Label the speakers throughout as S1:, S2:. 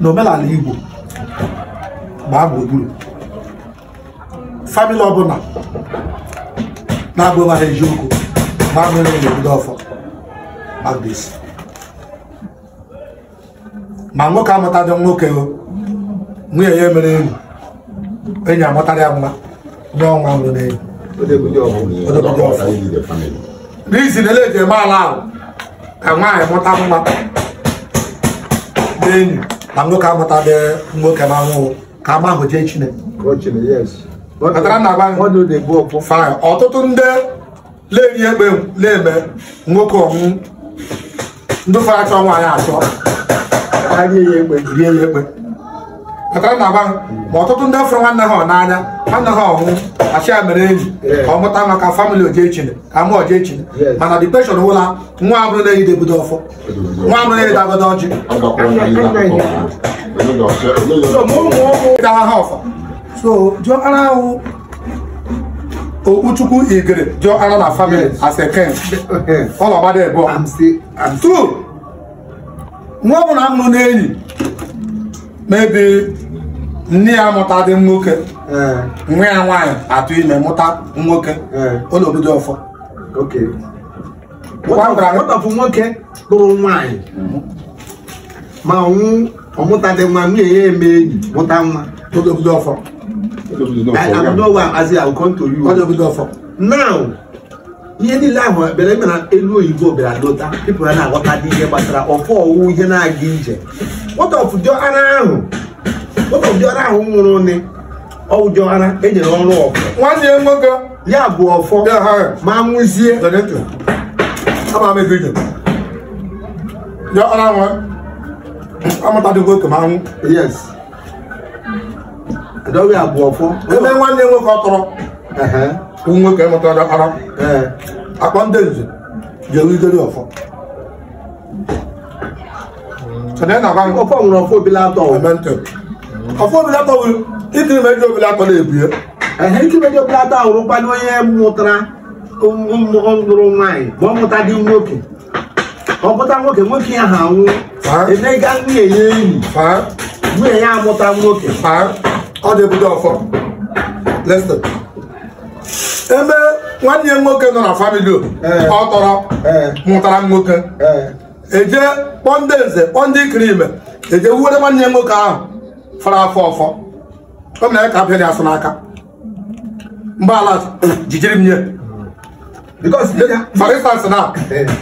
S1: n'omenala Igbo gbaa gburugburu famili ọbụla na-agba ha eziokwu gbaa mere n'obodo ọfọ Agbaisi ma nwoke amụtadị nwoke nwunye ya emere enyi enyi amụtara ya nwa nye ọnwa nwụrụ n'enyi n'izi na ele eji eme ala ahụ ka nwaanyị mụta nwa enyi na nwoke amụta dị nwoke na nwụ ka ama ahụ jee chineke ọtụtụ ndị na-eri egbe na-eme nwoke ọnwụ ndị fara achọ nwaanyị achọ rie ya ekpe akara na agwa ma ọtụtụ ndị fụrụ nwanne ha n'anya ha na ha ọhụụ achị ya mere enyi ka ọ mụta maka famịlị ojechine ka mụ ojechine mana depreshọn ụla nwa abụrụ na-eyide ọfọ nwa abụrụ na-eyide agodo ọjị ha ọfọ so jụọ ara ahụ jụọ ara na famịlị as a ọlọgbada ebuọ nwa ọbụla maybe nne ya mụtadị nwoke eh. nwa ya nwaanyị atụ ime mụta nwoke ụlọ eh. obodo ọfọ nwatapụ nwoke lụrụ nwaanyị ma nwụ ọmụtadị nwa nwunye ya eme enyi mụta nwa ụlọ obodo ọfọ now ihe niile ahụ ekpere ime na elu oyibo bịara lota pipụl ya na-aghọta dị ihe gbasara ọfọ ọwụwụ ihe na-aga ije ọfụdiọara ahụ nwụrụ nne ọwụdiọara enyere ọrụ ọfọ nwanne ya nwoke ya bụ ọfọ ma nwụzie eh, adọghị abụ ọfọ ebe nwanne nwoke ọ tọrọ nwoke mụtara ara accountancy jewugere ọfọ sọdẹ na kwan ọfọ nwere ọfọ obi latọ ọmọntẹ ọfọ obi latọ wụ ikiri mejọ obi latọ na-ebue ehe ikiri mejọ obi latọ ahụrụ kwado onye mụtara nụrụ um, nwaanyị ma ọ mụta dị nwoke ọ mụta nwoke nwoke ya ha nwụ emega nwunye ya enyi nwunye ya amụta nwoke ọ dị ebudo ọfọ listen ebe nwanne ya nwoke nọ na famili eh. ọ tọrọ eh. mụtara nwoke eje eh. e kpọọ ndị nze kpọọ ndị ikiri ime eje wuere nwanne nwoke ahụ fara afọ ọfọ o mere ka abịa dị asụ n'aka ala jijiri m nye for instance na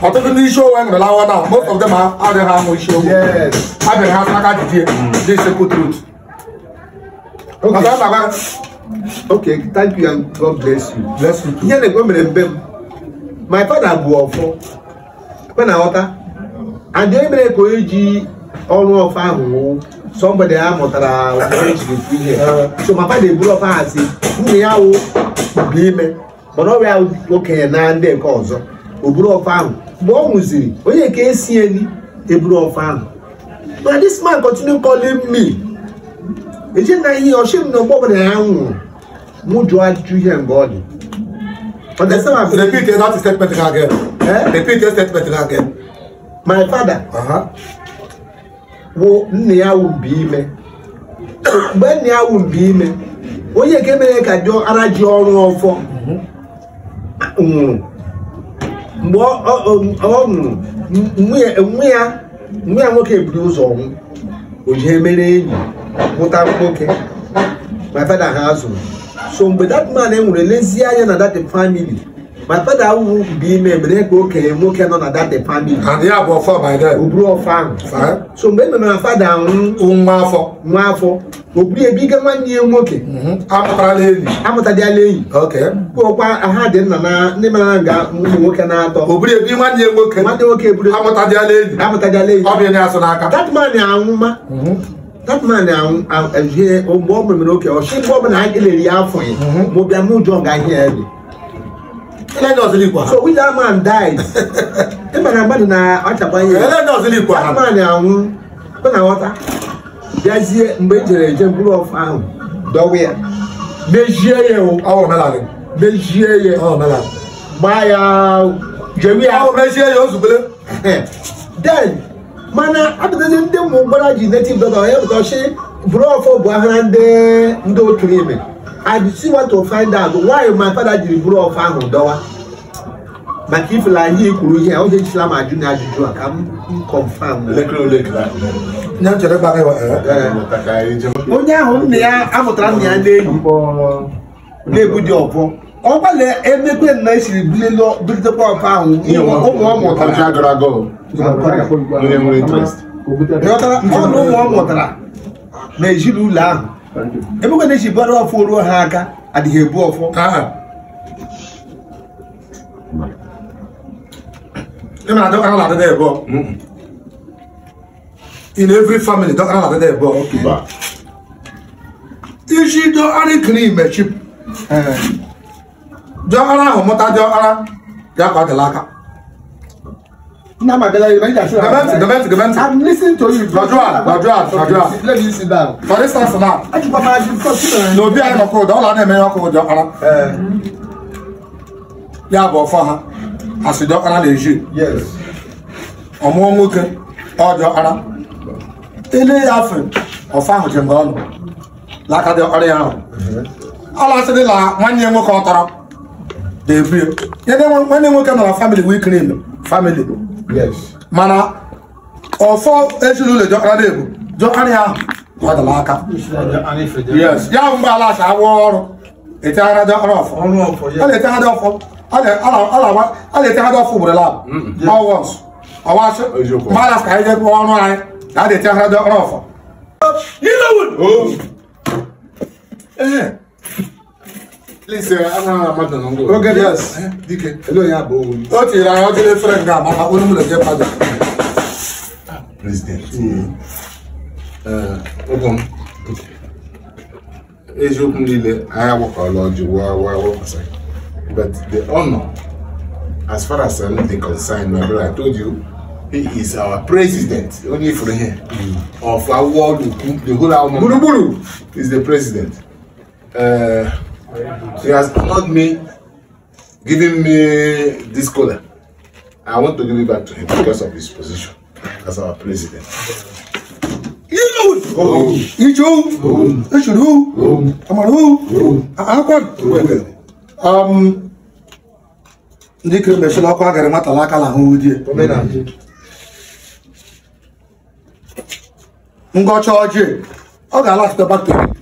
S1: ọtụtụ ndị isi owe nwere lawa na most of them adịghị amụ isi owe abịaghị ha n'aka jijie dị sekụ trut Okay, thank you and God bless you. Bless you too. Ihe na-egwe mere mbe m. My father bụ ọfọ. Kwe na nghọta. And e mere ka onye ji ọrụ ọfọ ahụ wụ somebody a mụtara e ihe. So my father eburu ọfọ ha si nna ya wụ bụ ime mana ọ bịa okenye na ndị nke ọzọ o buru ọfọ ahụ mgbe ọ nwụziri onye nke esi eni eburu ọfọ ahụ. But this man continue calling me ɛgye nan yi ɔhyɛ mu na ɔbɔ mu na ɛnwo mu dwo adu yɛ ngɔɔde ɔdɛ sɛ ma fi. repeat your last statement again. Eh? repeat your statement again. my father. Uh -huh. wo nne ya wo mbi ime mgbe nne ya wo mbi ime onye nke mere ka dị ara ji ọrụ ọfọ mhm. nwụrụ mgbe ọ nwụrụ nwe ya nwoke buru ụzọ nwụ o jee mere enyi nwụta nwoke my father ha zụrụ so mgbe that man enwere lezie anya na that family my father awụwụ bụ ime mere ka okenye nwoke nọ na that family so mgbe e na fada nwụ nwa afọ nwa afọ nwanne ya nwoke mhm. amụtadịala enyi ọkwa dị nna na ndị mara nga ụmụ nwoke na-atọ nwanne ya nwoke nwanne nwoke amụtadịala enyi amụtadịala enyi ya asụ n'aka that that man ahwie ọgbọ mmiri na oke ọhyẹ bọ mmiri na agilere afọ yi mo bia mo jọ ga ahịa ẹbi. ẹlẹ́dẹ̀ ọ̀sẹ̀ lè kọ́ ha. so which that man died. ìbàdàn àgbàdo na ọ̀chàpá yẹ. ẹlẹ́dẹ̀ ọ̀sẹ̀ lè kọ́ ha. that man ahụ ọ na ọta bịazie mgbe ejere eje mkpụrụ ọfa ahụ dọwa ya mejie ya o. ọwọ mẹlanị. mejie ya. ọwọ mẹlanị. gbaa ya jewi ya. ọwọ mejie ya o zubere. then. mana abụtazi ndị mụ mgbara ji netiv dọla onye bụtọchi bụrụ ọfọ bụ ahara ndị ndị otu ime adisi wato find out nwaanyị ma fada jiri bụrụ ọfọ ahụ dọwa maka ifela ihe kwuru ihe oge jisila m ajụ na ajụjụ a ka m kọnfam eh, eh. onye ahụ nna ya amụtara nna ya na na-ebu dị ọbọ ọgbàlẹ̀ emekwe na esiri bililo bilite pọmpụ ahụ ụmụ ọmụ ụtara nke agara aga onye nwere interest ịghọtara ọnụ ụmụ ọmụ ụtara na ezinụlọ ahụ emekwe na-esi bara ọfụ ruo ha aka adịghị ebu ọfụ ịna-adọkara na-adịda ebe in every family dọkara na-adịda ebe isi dọkara ikiri imechi diọkpara ahụ mụta diọkpara bịa ka ọ dịla aka Now my I Ya bụ ọfọ ha As you nwoke ọ Ele ya ahụ je ngọ ọnụ. Laka dị ọrịa ahụ. Ala sị la nwanne nwoke ọ they bring yeah then when they work on our family we clean family yes mana or for ọfọ ejiri ụlọ jọ ara the jọ ara ya gwadala aka yes ya mgbe ala asa awọ ọrụ eteghara ọrụ ọfọ a na-eteghara ọfọ a na-eteghara ọfọ ugboro lab mm-hmm. all once ọwasị mmadụ ka anyị jebe ọrụ anyị na a na off? You know Nilawun! Oh! Eh! Please, ana amadu na ngwa. Oge yes. Dike. Elo ya bụ owu. O tiri anya ọjọọ efere nga maka onye mụrụ nke pada. President. Ụgwọ m. Eziokwu niile anyị agbakọla ọjị wa wa wepụsa. But the honor, as far as I'm the concerned, my brother, I told you, he is our president. Only for here. Mm. Of our world, the whole our Buruburu is the president. Uh, She has called me, giving me this color. I want to give it back to him because of his position as our president. Ijo, Eshuru, Amaru, Akwad. Um, ndị kere mesịrị ọkụ agara matala aka na ahụhụ di ngọcha ọjị ọ ga-alachite bakteri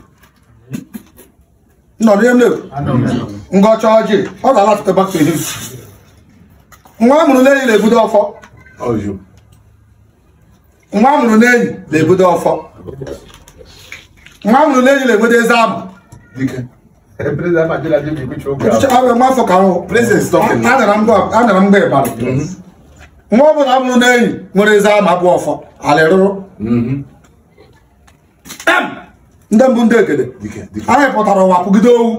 S1: ngọcha ọjị ọ ga-alafụtaba nwa amụrụ n'enyi na-ebudo ọfọ nwa amụrụ n'enyi ọfọ nwa amụrụ n'enyi na-ebudo eze abụ afọ ka anara mgba ịbara nwa amụrụ n'enyi nwere eze abụ ọfọ alịrụrụ ndị mbụ ndị ekele anyị pụtara ụwa pụgide owu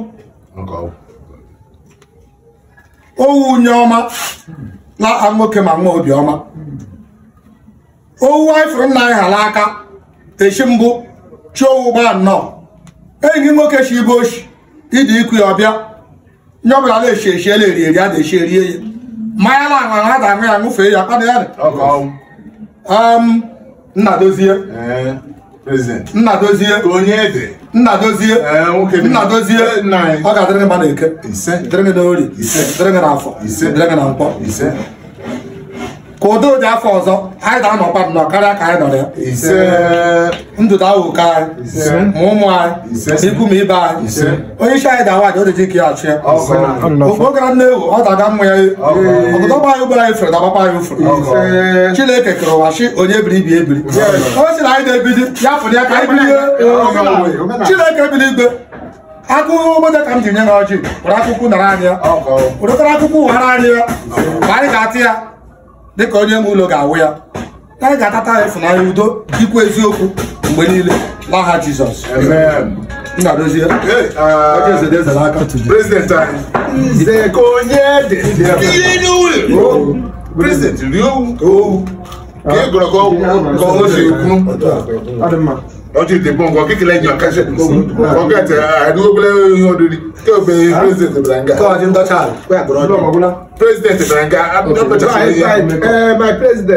S1: owu nye ọma na nwoke ma nwa obiọma owu anyị fụrụ nna anyị ha n'aka echi mbụ chiowu gbaa nnọọ enyi nwoke chi ibe ochi ịdị ikwu ya ọbịa nye ọbụla na-echi echi ele eri eri ada echi erie ya mmanya na aṅụ ha da aṅụ ya ṅụfee ya kpana ya nna dozie dozie. onye Nna dozie. Eh, eh, ọ ga-adịrị mma na eke dịrị na ori dịrị na afọ dịrị na nkwọ ka udo dị afọ ọzọ anyị ga-anọkwa nnọọ karịa ka anyị nọrọ ya ndụ dawoke anyị ma ụmụ anyị ikwu ma ibe anyị onye isi anyị dawa aja odeji ka ya achị ya ogbo gara nnewu ọ daga mma ya ọgụdọ gba anyị ugboro anyị fere dabakwa anyị ufere chineke kere ụwa chi onye biri ibi ebiri o si na anyị na-ebidi ya fụrụ ya ka anyị bilie chineke biri igwe akụkọ obodo ka m ji nye na ọjị were akụkụ nara anyị ya were akụkụ ụghara anyị ya ka anyị ga-atị ya dịka onye nwe ụlọ ga-awụ ya anyị ga-atata ya ịfụnanya udo dịkwa eziokwu mgbe niile n'aha Jizọs Nnadozie uh, prezidenti rie owu ka ị gụrụ ka ọgwụ e ka ọ si ekwu lọ́tí ìdìbò nǹkan kékeré ẹ̀yàn kẹsẹ̀ ọ̀gẹ̀tì àdúgbòkulẹ̀ ọ̀dọ̀dì tí o bẹ̀rẹ̀ president Ibrahim Gaye. káwọn ti ń tọ́jà rẹ̀ pé àgbọ̀nrán ọdún. president Ibrahim Gaye. my president.